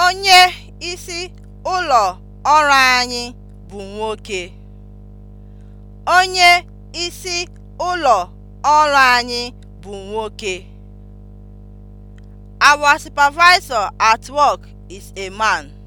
Onye isi ụlọ ọrụ anyị bụ nwoke. Onye isi ụlọ Our supervisor at work is a man.